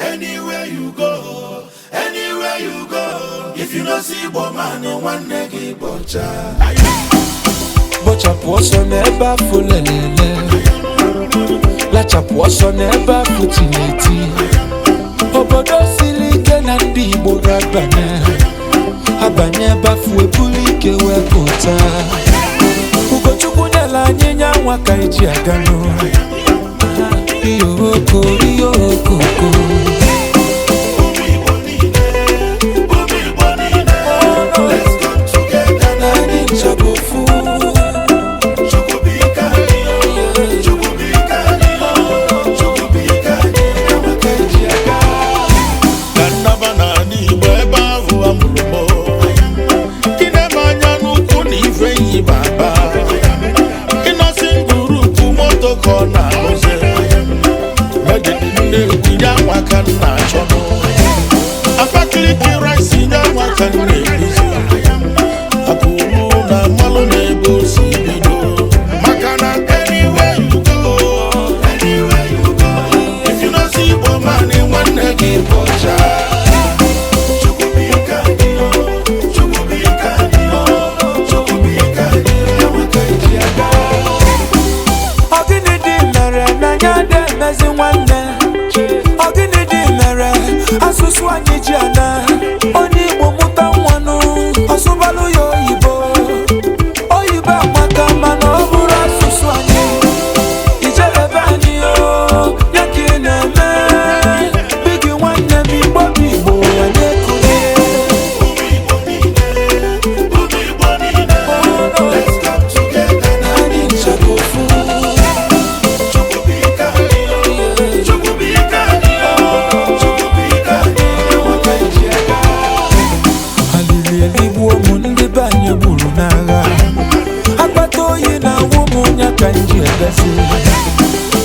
Anywhere you go, anywhere you go, if you no see Igbo nwanne gị bọcha. Bọchapụ ọsọ n'ebe afọ lelele, lachapụ ọsọ n'ebe afụ tineti. Obodo siri ike na ndị Igbo ga-abanye, abanye ebe afọ ebulu ike wee pụta. Ugochukwu nyela anyị nya nwa ka eji aga n'ụlọ. iyoko iyoko. chụọ anyị ji ana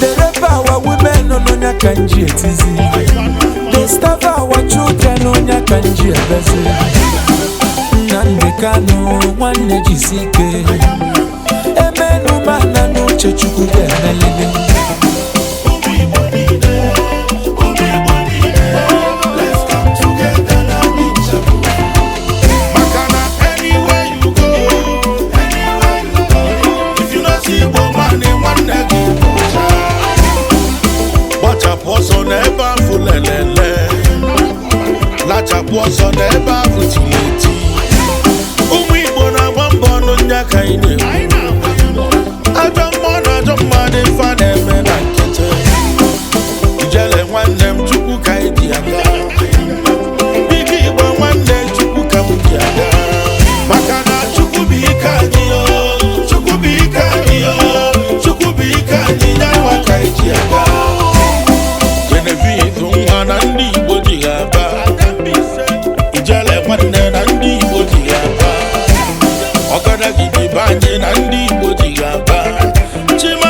The rape our women on Onya Kanji it is They starve our children on Onya Kanji it is Nande Kano, one Nejisike Emenu lelele lachapụ ọzọ n'ebe ahụ tiri eti ọkada gị be anyị na ndị Igbo ji ga-aba